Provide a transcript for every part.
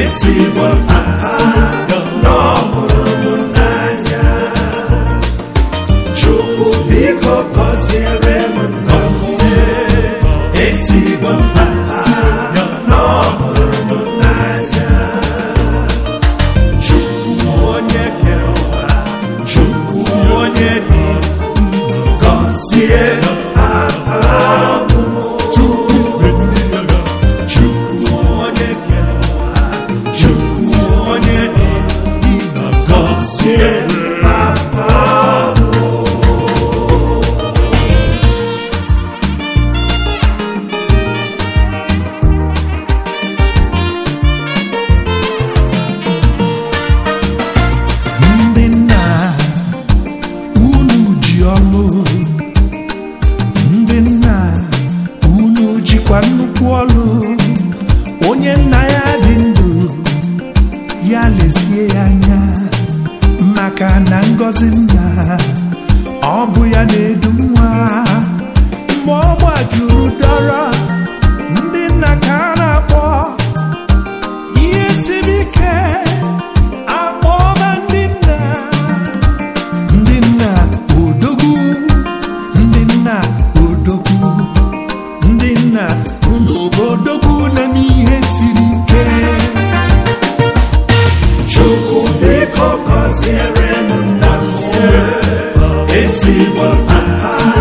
ezigbo n'ọhụrụn'anya chukwu biko gọziere m ngọzi ezigbo n'ọhụrụ ya anya maka na ngọzi nna ọ bụ ya na-edu nwa mgbe ọ gbajuru ụdọrọ ndị nna ka a na-akpọ ihe siri ike akpọba ndị nna ndị nna odogwu ndị nna odogwu ndị nna ụlọ odogwu na siri see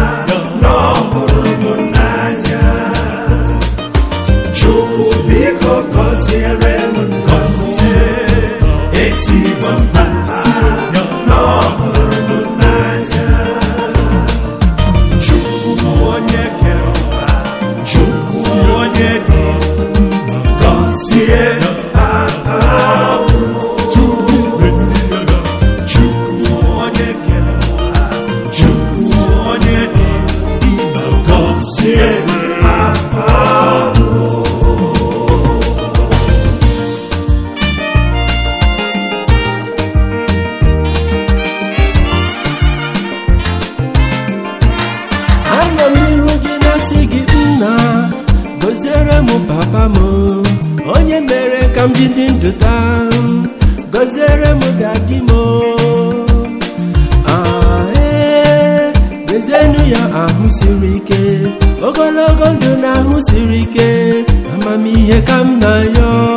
ka m ji ndụ taa gọziere m dadi m ee ya ahụ siri ike ogologo ndụ na ahụ siri ike amamihe ka m na-ayọ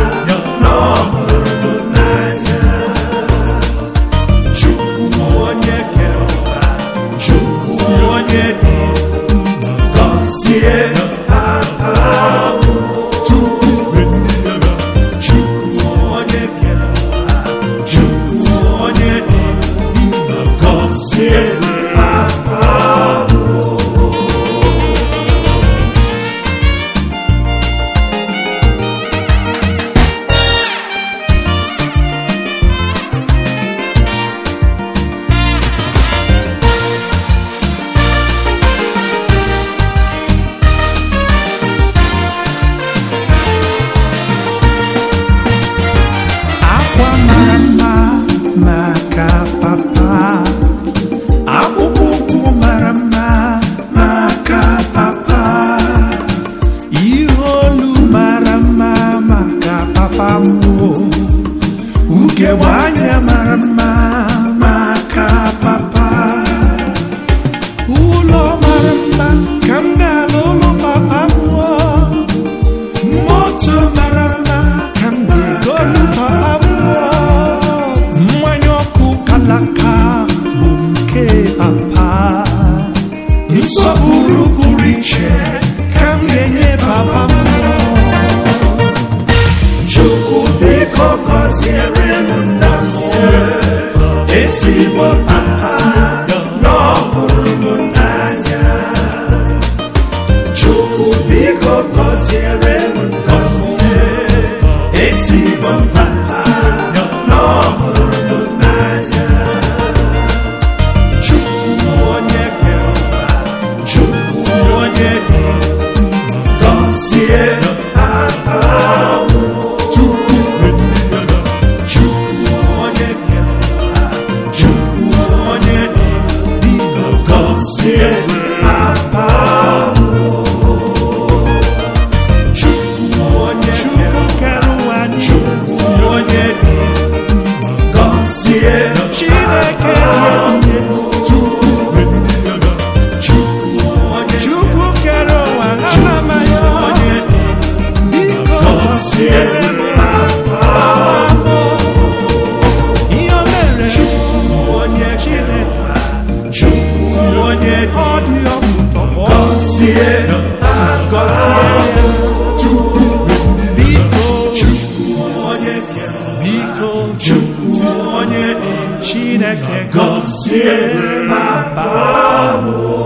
egbe mara mma maka ụlọ mara mma ka ụlọ papa mmụọ moto mara mma ka ụlọ papa mmụọ mmanya ọkụ kalaka bụ nke papa nsọpụrụ pụrụ iche ka m enye biko gọziere m esi ezigbo mma ha Chineke gọzie ma baa